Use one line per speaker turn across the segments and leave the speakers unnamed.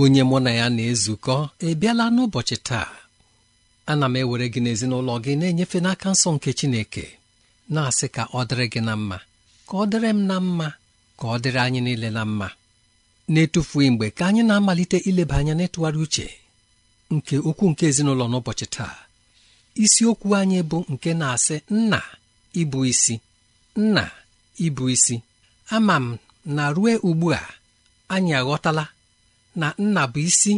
onye mụ na ya na-ezukọ ị n'ụbọchị taa ana m ewere gị n'ezinụlọ gị na-enyefe n'aka nsọ nke Chineke na-asị ka ọ dịrị gị na mma ka ọ dịrị m na mma ka ọ dịrị anyị niile na mma na-etufughị mgbe ka anyị na-amalite ileba anya n'ịtụgharị uche nke okwu nke ezinụlọ n'ụbọchị taa isiokwu anyị bụ nke na-asị nna ịbụ isi nna ịbụ isi ama m na rue ugbu a anyị aghọtala na nna bụ isi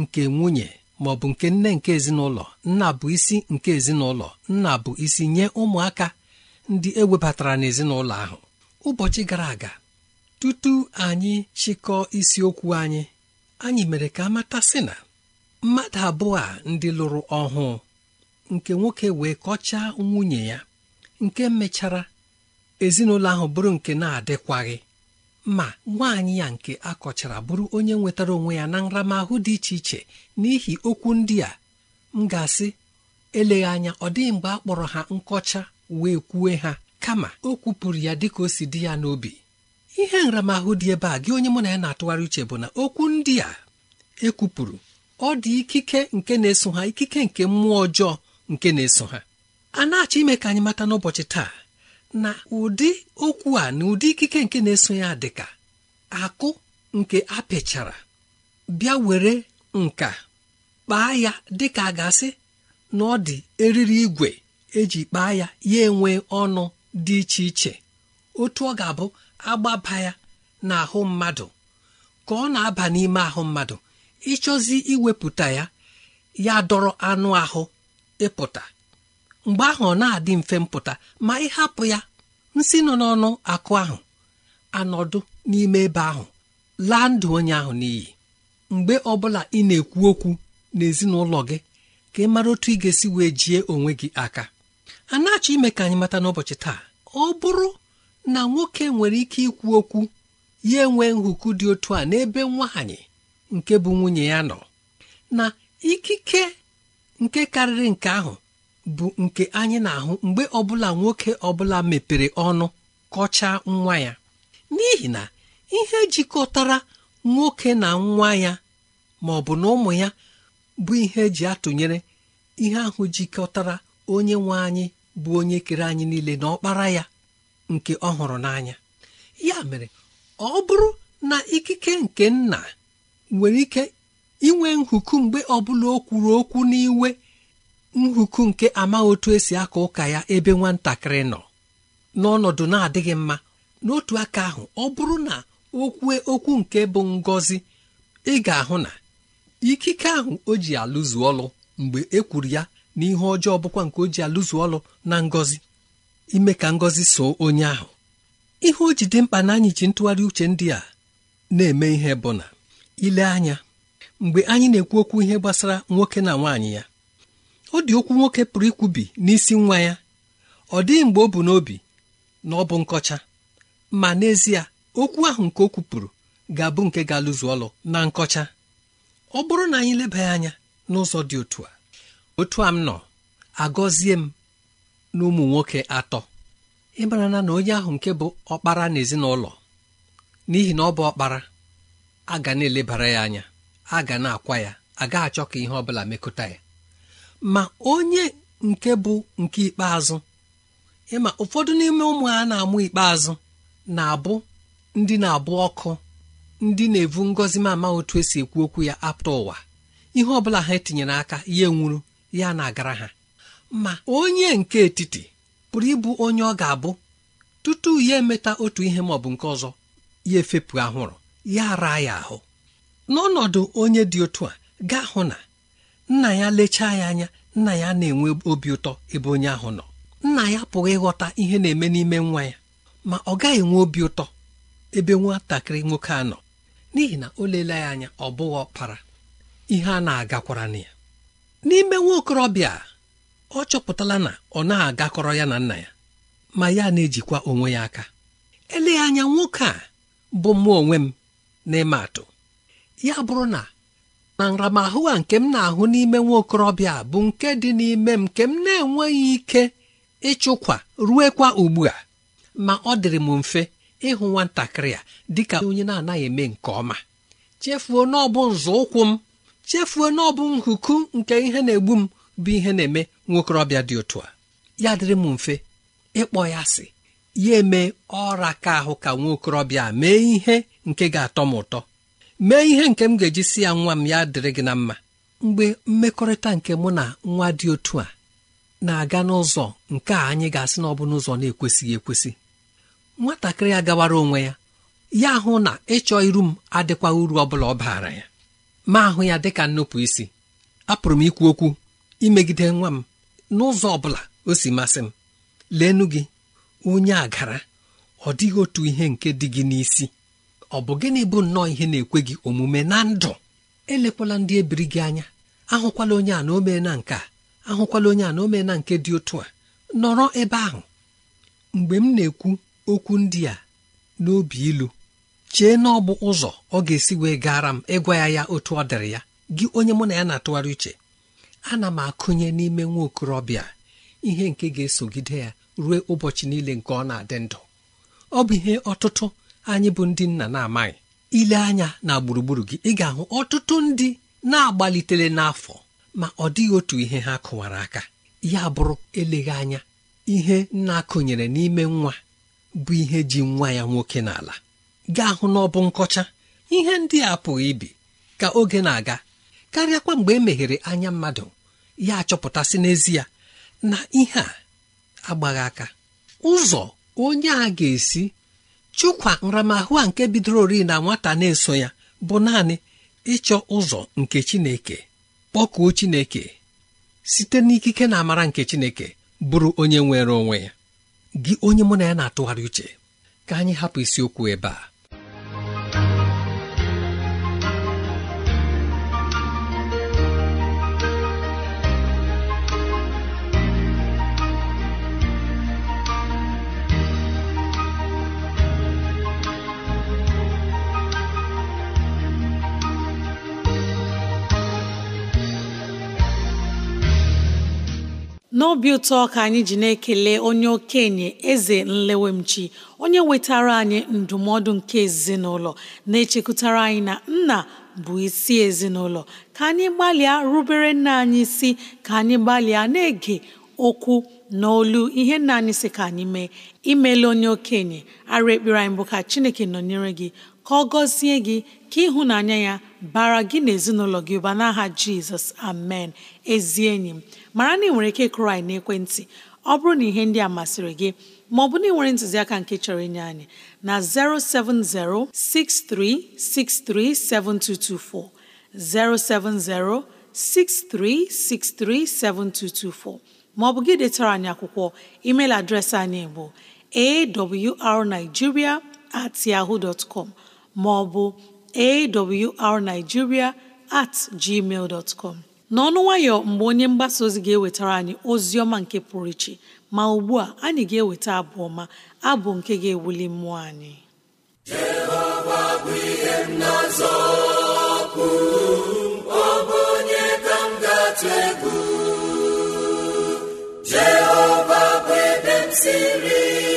nke nwunye ma ọ bụ nke nne nke ezinụlọ nna bụ isi nke ezinụlọ nna bụ isi nye ụmụaka ndị ewebatara n'ezinụlọ ahụ ụbọchị gara aga tutu anyị chịkọọ isiokwu anyị anyị mere ka amata sị na mmadụ abụọ a ndị lụrụ ọhụụ nke nwoke wee kọchaa nwunye ya nke mechara ezinụlọ ahụ bụrụ nke na-adịkwaghị ma nwaanyị ya nke akọchara bụrụ onye nwetara onwe ya na nramahụ dị iche iche n'ihi okwu ndị a m ga-asị eleghị anya ọ dịghị mgbe a kpọrọ ha nkọcha wee kwue ha kama o kwupụrụ ya ka o si dị ya n'obi ihe nramahụ dị ebe a gị onye mụ na ya na-atụgharị uche bụ na okwu ndị a ekwupụrụ ọ dị ikike nke na-eso ha ikike nke mmụọ ọjọọ nke na-eso ha a na-achọ ime ka anyị mata n'ụbọchị taa na ụdị okwu a na ụdị ikike nke na-eso ya dịka akụ nke a apịchara bịa were nka kpaa ya dịka a ga na ọ dị eriri igwe eji kpaa ya ya enwe ọnụ dị iche iche otu ọ ga-abụ agbaba ya na ahụ mmadụ ka ọ na-aba n'ime ahụ mmadụ ịchọzi iwepụta ya ya dọrọ anụ ahụ ịpụta mgbe ahụ ọ na-adị mfe mpụta ma ịhapụ ya nsi nọ n'ọnụ akụ ahụ anọdụ n'ime ebe ahụ laa ndụ onye ahụ n'iyi mgbe ọbụla ị na-ekwu okwu n'ezinụlọ gị ka ị mara otu ị ga-esi wee jie onwe gị aka a na-achọ ime ka anyị mata n'ụbọchị taa ọ bụrụ na nwoke nwere ike ikwu okwu ya enwee nhụkụ dị otu a n'ebe nwaanyị nke bụ nwunye ya nọ na ikike nke karịrị nke ahụ bụ nke anyị na-ahụ mgbe ọbụla nwoke ọbụla mepere ọnụ kọchaa nwa ya n'ihi na ihe jikọtara nwoke na nwa ya ma ọ bụ na ụmụ ya bụ ihe eji atụnyere ihe ahụ jikọtara onye nwe anyị bụ onye kere anyị niile na ọkpara ya nke ọ hụrụ n'anya ya mere ọ bụrụ na ikike nke nna nwere ike inwe nhuku mgbe ọbụla o kwuru okwu n'iwe nhuku nke amaghị otu esi aka ụka ya ebe nwatakịrị nọ n'ọnọdụ na-adịghị mma n'otu aka ahụ ọ bụrụ na okwu okwu nke bụ ngọzi ị ga-ahụ na ikike ahụ o ji alụzu ọlụ mgbe e kwuru ya ihe ọjọọ bụkwa nke o ji alụzu ọlụ na ngọzi ime ka ngọzi so onye ahụ ihe o ji dị mkpa na anyị ji ntụgharị uche ndị a na-eme ihe bụ na ile anya mgbe anyị na-ekwu okwu ihe gbasara nwoke na nwaanyị ya ọ dị okwu nwoke pụrụ ikwubi n'isi nwa ya ọ dịghị mgbe ọ bụ n'obi na ọ bụ nkọcha ma n'ezie okwu ahụ nke o kwupụrụ ga-abụ nke ga-alụzu ọlụ na nkọcha ọ bụrụ na anyị lebaghị anya n'ụzọ dị otu a otu a m nọ agọzie m na ụmụ nwoke atọ ịmara na onye ahụ nke bụ ọkpara n'ezinụlọ n'ihi na ọ bụ ọkpara a ga na-elebara ya anya a ga na-akwa ya agaghị achọ ka ihe ọ bụla mekọta ya ma onye nke bụ nke ikpeazụ ịma ụfọdụ n'ime ụmụ ha na-amụ ikpeazụ na-abụ ndị na-abụ ọkụ ndị na-evu ngọzi ama otu esi ekwu okwu ya apụta ụwa ihe ọbụla ha etinyere aka ya nwuru ya na-agara ha ma onye nke etiti pụrụ ịbụ onye ọ ga-abụ tutu ya emeta otu ihe ma ọ bụ nke ọzọ ya efepụ ahụrụ ya ara ya ahụ n'ọnọdụ onye dị otu a gaa hụ na nna ya lechaa ya anya nna ya na-enwe obi ụtọ ebe onye ahụ nọ nna ya pụghị ịghọta ihe na-eme n'ime nwa ya ma ọ gaghị enwe obi ụtọ ebe nwatakịrị nwoke a nọ n'ihi na o leela ya anya ọ bụghị ọkpara ihe a na-agakwara na ya n'ime nwa okorobịa ọ chọpụtala na ọ na-agakọrọ ya na nna ya ma ya na-ejikwa onwe ya aka eleghị anya nwoke a bụ mụ onwe m n'ịma atụ ya bụrụ na na nramahụ a nke m na-ahụ n'ime nwa okorobịa bụ nke dị n'ime m nke m na-enweghị ike ịchụkwa e ruekwa ugbu a ma ọ dịrị m mfe ịhụ e nwatakịrị a dịka onye na-anaghị eme nke ọma chefuo n'ọbụ nzọụkwụ m chefuo n'ọbụ nhuku nke ihe na-egbu m bụ ihe na-eme nwokorobịa dị otu a ya dịrị m mfe ịkpọ e ya sị, ya eme ọra ka ahụ ka nwaokorobịa mee ihe nke ga-atọ m ụtọ mee ihe nke m ga-eji si ya nwa m ya dịrị gị na mma mgbe mmekọrịta nke mụ na nwa dị otu a na-aga n'ụzọ nke a anyị ga-asị na ọ bụ n'ụzọ na-ekwesịghị ekwesị nwatakịrị ya gawara onwe ya ya hụ na ịchọ iru m adịkwa uru ọ bụla ọ baara ya ma ahụ ya dị ka nnupụ isi apụrụ m ikwu okwu imegide nwa m n'ụzọ ọ bụla o si masị m leenu gị onye agara ọ dịghị otu ihe nke dị gị n'isi ọ bụ gịnị bụ nnọọ ihe na-ekwe gị omume na ndụ elekwala ndị ebiri gị anya ahụkwala onye a na omena nke a ahụkwala onye a na omena nke dị otu a nọrọ ebe ahụ mgbe m na-ekwu okwu ndị a n'obi ilu chee na ọ bụ ụzọ ọ ga-esi wee gara m ịgwa ya ya otu ọ dịrị ya gị onye mụ na ya na-atụgharị uche ana m akụnye n'ime nwa okorobịa ihe nke ga-esogide ya ruo ụbọchị niile nke ọ na-adị ndụ ọ bụ ihe ọtụtụ anyị bụ ndị nna na-amaghị ile anya na gburugburu gị ị ga-ahụ ọtụtụ ndị na-agbalitere n'afọ ma ọ dịghị otu ihe ha kụwara aka ya bụrụ eleghị anya ihe na-akụnyere n'ime nwa bụ ihe ji nwa ya nwoke n'ala gaa hụ n'ọbụ nkọcha ihe ndị a pụghị ibi ka oge na-aga karịakwa mgbe e meghere anya mmadụ ya achọpụtasị n'ezie na ihe a agbaghị aka ụzọ onye a ga-esi chukwa nramahụ a nke bidoro ori na nwata na-eso ya bụ naanị ịchọ ụzọ nke chineke kpọkuo chineke site n'ikike na amara nke chineke bụrụ onye nwere onwe ya gị onye mụ na ya na-atụgharị uche ka anyị hapụ isiokwu ebe a
n'obi ụtọ ka anyị ji na-ekele onye okenye eze nlewemchi onye wetara anyị ndụmọdụ nke ezinụlọ na-echekwutara anyị na nna bụ isi ezinụlọ ka anyị gbalịa rubere nna anyị isi ka anyị gbalịa na-ege okwu n'olu ihe nna anyị si ka anyị mee imela onye okenye ara ekpere anyị bụ ka Chineke nọnyere gị ka ọ gọzie gị ka ịhụnanya ya bara gị na ezinụlọ gị ụba n'aha jizọs amen ezi enyi m mara na ị nwere ike kụrụ na ekwentị ọ bụrụ na ihe ndị a masịrị gị ma ọ bụ na ị nwere ntụziaka nke chọrọ inye anyị na 070 7224 070 63637224 maọbụ gị detara anyị akwụkwọ email adreesị anyị bụ awrnigeria at yahoo dot maọbụ awrnigeria at gmail dot n'ọnụ nwayọ mgbe onye mgbasa ozi ga-ewetara anyị ozi ọma nke pụrụ iche ma ugbu a anyị ga-eweta abụ ọma abụ nke ga-ewuli mmụọ anyị
Jehova bụ ihe m na ọ bụ onye ka Jehova bụ ebe m siri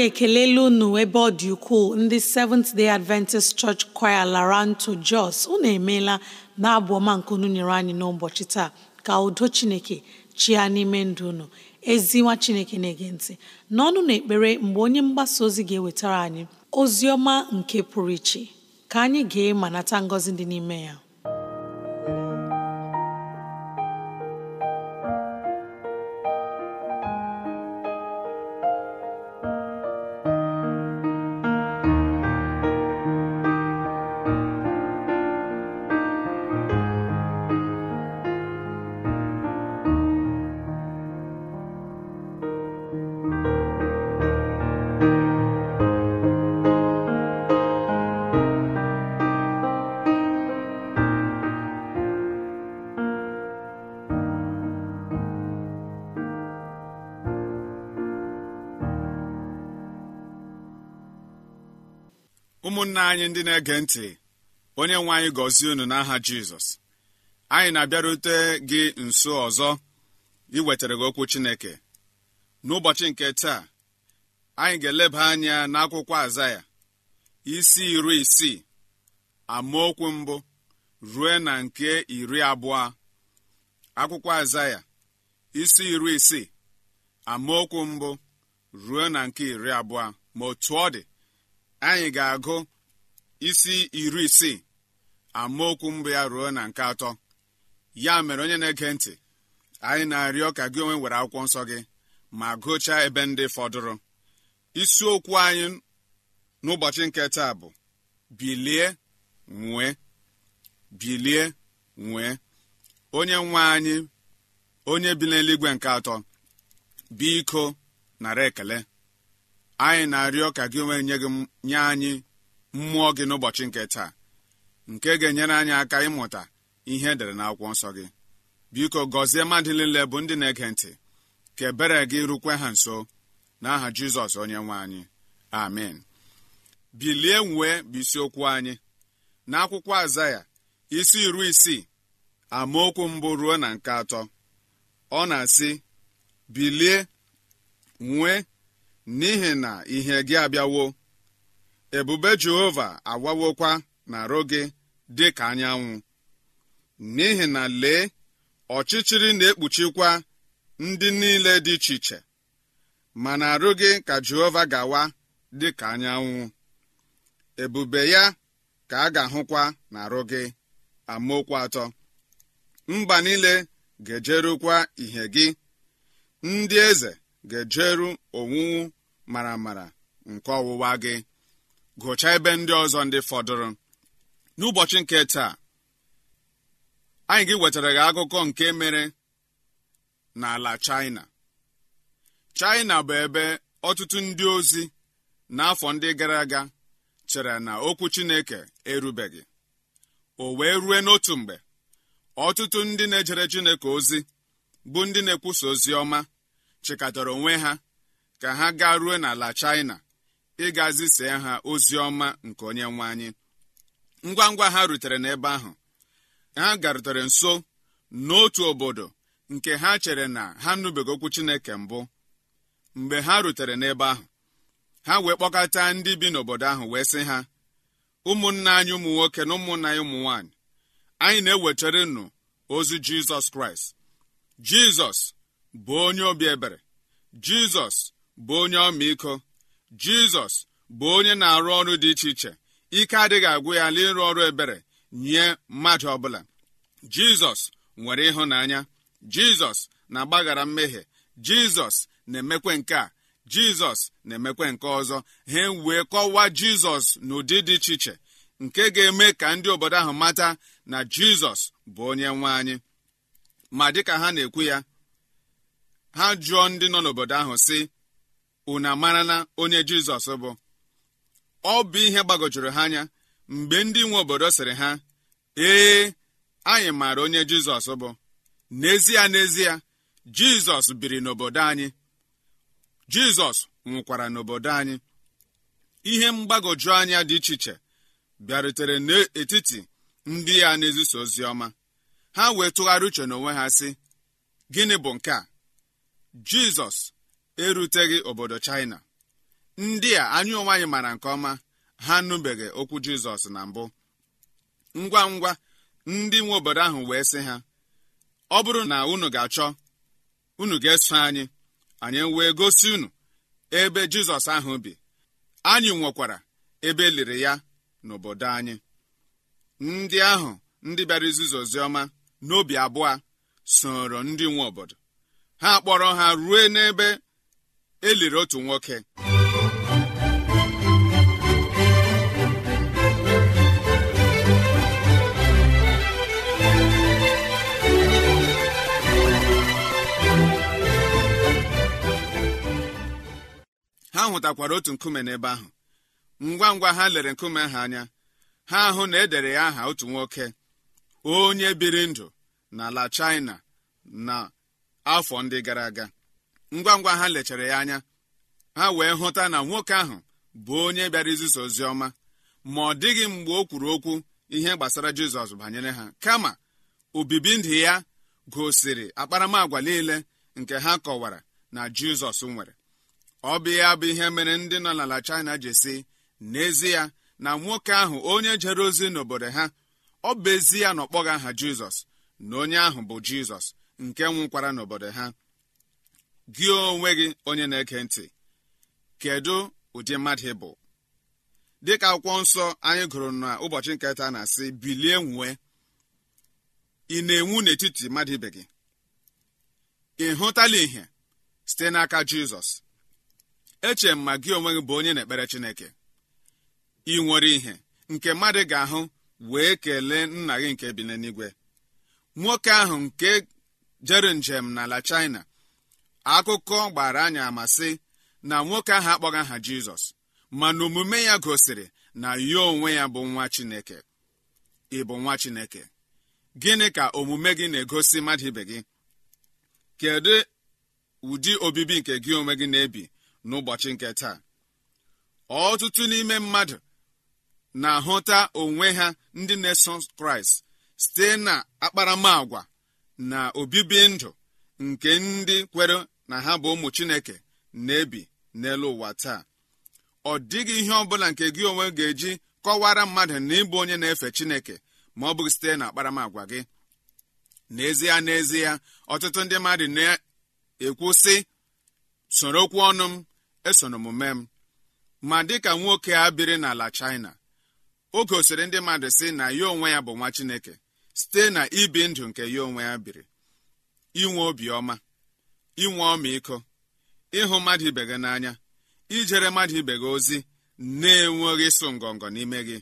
anyị ekelela unu ebe ọ dị ukwuu ndị Seventh Day Adventist Church Choir Laranto Jos unu emeela na-abụ ọma nke unu nyere anyị n'ụbọchị taa ka udo Chineke chia n'ime ndụ unu ezi nwa Chineke na-ege ntị n'ọnụ na ekpere mgbe onye mgbasa ozi ga-ewetara anyị ozi ọma nke pụrụ iche ka anyị ga ma nata ngọzi dị n'ime ya
ụmụnna anyị ndị na-ege ntị onye nwe anyị gọzie unu n'aha jizọs anyị na-abịarute gị nso ọzọ iwetara gị okwu chineke n'ụbọchị nke taa anyị ga-eleba anya n'akwụkwọ aza ya isi iri isii amaokwu mbụ rue na nke iri abụọ akwụkwọ aza isi iri isii amaokwu mbụ ruo na nke iri abụọ ma otu ọ dị anyị ga-agụ isi iri isii amaokwu mbụ ya ruo na nke atọ ya mere onye na-ege ntị anyị na-arịọ ka gị onwe were akwụkwọ nsọ gị ma gụchaa ebe ndị fọdụrụ isiokwu anyị n'ụbọchị nke taa bụ bilie nwee bilie nwee onye nwe anyị onye bi n'eluigwe nke atọ biko nara ekele anyị na-arịọ ka gị onwe nye anyị mmụọ gị n'ụbọchị nke taa nke ga-enyere anyị aka ịmụta ihe edere n'akwụkwọ nsọ gị biko gọzie mmadụ niile bụ ndị na-ege ntị ka ebere gị rukwe ha nso n'aha jizọs onye nwe anyị amen bilie nwee bụ isiokwu anyị n'akwụkwọ azaya isi iri isii amaokwu mbụ ruo na nke atọ ọ na-asị bilie nwee n'ihi na ihe gị abịawo ebube jehova awawokwa na arụ gị dị ka anyanwụ n'ihi na lee ọchịchịrị na-ekpuchikwa ndị niile dị iche iche mana arụ gị ka jehova gawa dị ka anyanwụ ebube ya ka a ga-ahụkwa na arụ gị amaokwu atọ mba niile ga-ejerukwa ihe gị ndị eze ga-ejeru owuwu mara mara nke ọwụwa gị gụchaa ebe ndị ọzọ ndị fọdụrụ n'ụbọchị nke taa anyị gị wetara gị akụkọ nke mere n'ala China China bụ ebe ọtụtụ ndị ozi n'afọ ndị gara aga chere na okwu Chineke erubeghị o wee rue n'otu mgbe ọtụtụ ndị na-ejere Chineke ozi bụ ndị na-ekwusa ozi ọma chịkọtara onwe ha ka ha gaa rue n'ala China ịga zisee ha ozi ọma nke onye nwe anyị ngwa ngwa ha rutere n'ebe ahụ ha garutere nso n'otu obodo nke ha chere na ha nụbeghị okwu chineke mbụ mgbe ha rutere n'ebe ahụ ha wee kpọkọta ndị bi n'obodo ahụ wee sị ha ụmụnna anyị ụmụ nwoke na ụmụnna anyị ụmụ nwaanyị anyị na-ewechere nụ ozi jizọs kraịst jizọs bụ onye obi ebere jizọs bụ onye ọmaiko jizọs bụ onye na-arụ ọrụ dị iche iche ike adịghị agwụ ya ala ịrụ ọrụ ebere nye mmadụ ọbụla jizọs nwere ịhụnanya jizọs na-agbaghara mmehie jizọs na-emekwe nke a jizọs na-emekwe nke ọzọ ha wee kọwaa jizọs n'ụdị dị iche iche nke ga-eme ka ndị obodo ahụ mata na jizọs bụ onye nwe anyị ma dịka ha na-ekwu ya ha jụọ ndị nọ n'obodo ahụ sị unu amarala onye jizọs bụ ọ bụ ihe gbagojuru ha anya mgbe ndị nwe obodo sịrị ha ee anyị maara onye jizọs bụ n'ezie n'ezie jizọs biri n'obodo anyị jizọs nwụkwara n'obodo anyị ihe mgbagoju anya dị iche iche bịarutere n'etiti ndị ya na-ezisa ozi ọma ha wee tụgharị uche n'onwe ha sị gịnị bụ nke a jizọs eruteghị obodo China ndị a anyị onwe anyị mara nke ọma ha nụbeghị okwu Jizọs na mbụ ngwa ngwa ndị nwe obodo ahụ wee sị ha ọ bụrụ na unu ga-achọ unu ga-eso anyị anyị wee gosi unu ebe Jizọs ahụ bi anyị nwekwara ebe eliri liri ya n'obodo anyị ndị ahụ ndị bịara izizi oziọma n'obi abụọ soro ndị nwe obodo ha kpọrọ ha rue n'ebe e liri otu nwoke ha hụtakwara otu nkume n'ebe ahụ ngwa ngwa ha lere nkume ha anya ha ahụ na edere ya aha otu nwoke onye biri ndụ n'ala China na afọ ndị gara aga ngwa ngwa ha lechara ya anya ha wee hụta na nwoke ahụ bụ onye bịara izisa ozi ọma ma ọ dịghị mgbe o kwuru okwu ihe gbasara jizọs banyere ha kama obibi ndụ ya gosiri akparamagwa niile nke ha kọwara na jizọs nwere ọ bụ ya bụ ihe mere ndị nọ n'ala china ji si n'ezie na nwoke ahụ onye jere ozi n'obodo ha ọ bụ ezi ya na ọkpọghị aha jizọs na onye ahụ bụ jizọs nke nwụkwara n'obodo ha gị onwe gị onye na-eke ntị kedu ụdị mmadụ ị bụ dịka akwụkwọ nsọ anyị gụrụ na ụbọchị nketa na-asị bilie nwee ị na-enwu n'etiti mmadụ ibe gị ị hụtala ihe site n'aka jizọs eche m ma gị onwe gị bụ onye na-ekpere chineke ị nwere ihe nke mmadụ ga-ahụ wee kelee nna gị nke bi n'eluigwe nwoke ahụ nke jere njem n'ala China akụkọ gbara anyị amasị na nwoke ahụ akpọghị aha jizọs mana omume ya gosiri na ya onwe ya bụ nwa chineke ị bụ nwa chineke gịnị ka omume gị na-egosi mmadụ ibe gị kedu ụdị obibi nke gị onwe gị na-ebi n'ụbọchị nke taa ọtụtụ n'ime mmadụ na-ahụta onwe ha ndị na-eso kraịst site na akparamàgwa na obibi ndụ nke ndị kwere na ha bụ ụmụ chineke na-ebi n'elu ụwa taa ọ dịghị ihe ọ bụla nke gị onwe ga-eji kọwara mmadụ na ịbụ onye na-efe chineke ma ọ bụghị site na gị n'ezie n'ezie ọtụtụ ndị mmadụ na-ekwu sị soro okwu ọnụ m esonomume m ma dịka nwoke a biri n'ala China o gosiri ndị mmadụ sị na ya onwe ya bụ nwa Chineke site na ibi ndụ nke ya onwe ya biri inwe obiọma inwe ọmịiko ịhụ mmadụ ibe gị n'anya ijere mmadụ ibe gị ozi na-enweghị ịsụ ngọngọ n'ime gị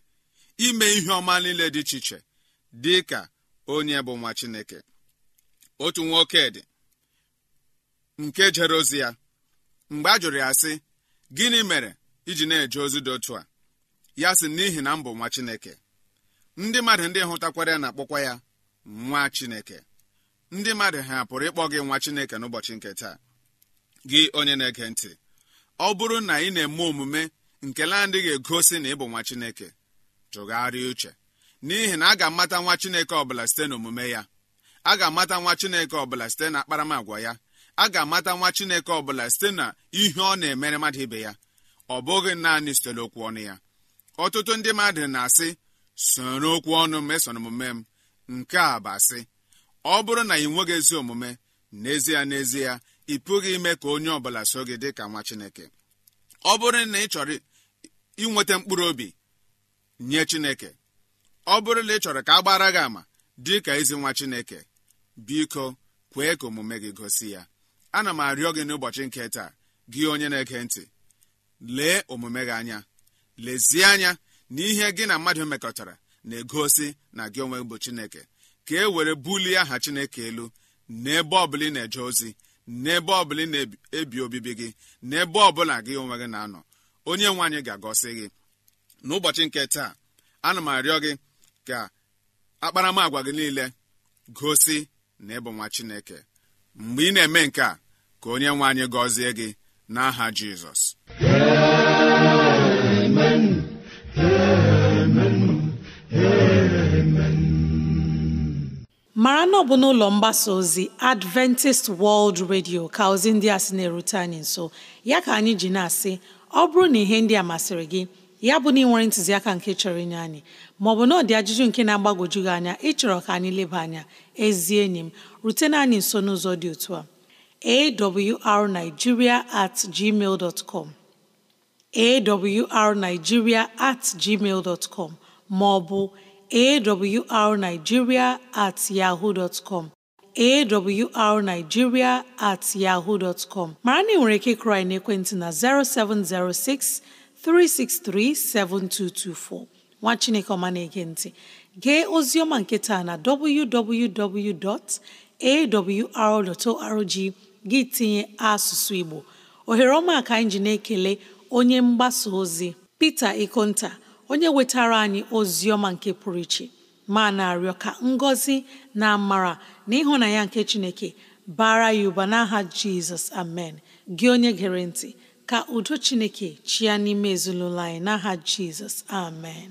ime ihe ọma niile dị iche iche dị ka onye bụ nwa chineke otu nwoke dị nke jere ozi ya mgbe a jụrụ ya sị gịnị mere iji na-eje ozi dị otu a ya sị n'ihi na mbụ nwa chineke ndị mmadụ ndị hụtakwara ya na-akpọkwa ya nwa chineke ndị mmadụ ha pụrụ ịkpọ gị nwa chineke n'ụbọchị nke taa gị onye na-ege ntị ọ bụrụ na ị na-eme omume nke na ga egosi na ị bụ nwa chineke tụgharịa uche n'ihi na a ga-amata nwa chineke ọbụla site n'omume ya a ga-amata nwa chineke ọbụla site na akparamagwa ya a ga-amata nwa chineke ọbụla site na ihe ọ na-emere mmadụ ibe ya ọ bụghị naanị site n'okwu ọnụ ya ọtụtụ ndị mmadụ na-asị soro okwu ọnụ mesoro omume m nke a bụ asị ọ bụrụ na ị nweghị ezi omume n'ezie n'ezie ị pụghị ime ka onye ọbụla so gị dị ka nwa chineke ọ bụrụ na ị chọrọ inweta mkpụrụ obi nye chineke ọ bụrụ na ị chọrọ ka a gbara gị ama dị ka ezi nwa chineke biko kwee ka omume gị gosi ya ana m arịọ gị n'ụbọchị nke taa gị onye na-ege ntị lee omume gị anya lezie anya na ihe gị na mmadụ mekọtara na-egosi na gị onwe bụ chineke ka e were bulie aha chineke elu n'ebe ọbụla ị na-eje ozi n'ebe ọbụla ị na-ebi obibi gị n'ebe ọbụla gị onwe gị na-anọ onye nwe anyị ga-agọsi gị n'ụbọchị nke taa ana m arịọ gị ka akparamagwa gị niile gosi na ịbụ nwa chineke mgbe ị na-eme nke a ka onye nwe anyị gọzie gị n'aha jizọs
mara na ọ bụ n'ụlọ mgbasa ozi Adventist World Radio ka ozi ndị a sị na-erute anyị nso ya ka anyị ji na-asị ọ bụrụ na ihe ndị a masịrị gị ya bụ na ị nwere ntụziaka nke chọrọ inye anyị maọbụ na ọ ajụjụ nke na agbagoju gị anya ịchọrọ ka anyị leba anya ezi enyi m rutena anyị nso n'ụzọ dị otu a awrnigeria at gmail at gmail dot com maọbụ awrnigeria at yahoo dot com awrnigeria at yahoo dot com mara na ị nwere ike ịkụrụ anyị ekwentị na 0706 363 7224 nwa Chineke ọma na-ege ntị gee ozi ọma nke taa na www.awr.org gị tinye asụsụ Igbo ohere ọma ka anyị ji ekele onye mgbasa ozi Peter Ikonta onye wetara anyị ozi ọma nke pụrụ iche ma na-arịọ ka ngọzi na amara na ịhụnanya nke Chineke bara ya ụba n'aha Jizọs amen gị onye gere ntị ka udo Chineke chịa n'ime ezinụlọ anyị n'aha Jizọs amen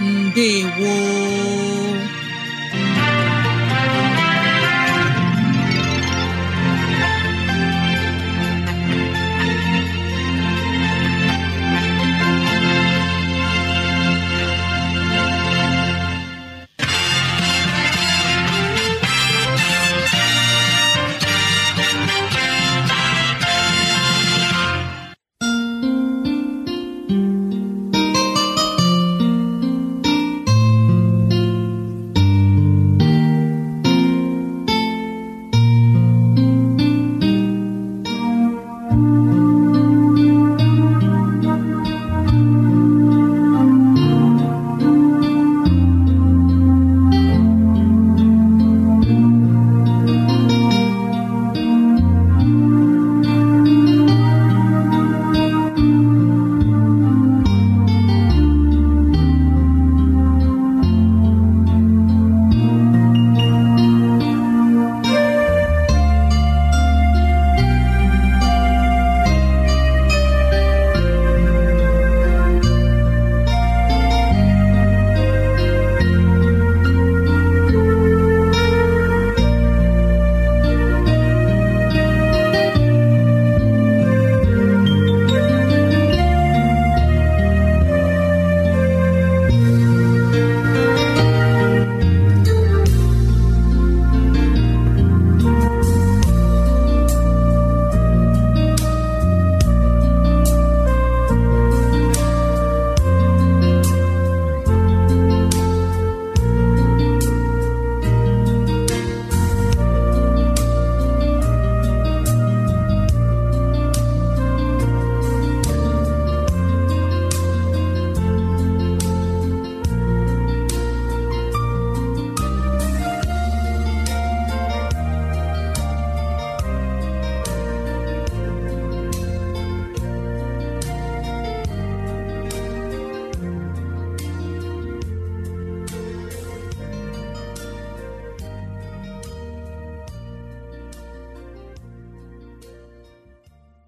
ndewo